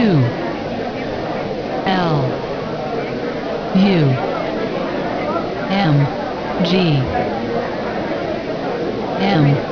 two L U M G M